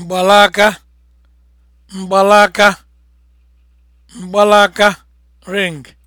mgbalaka mgbalaka mgbalaka ring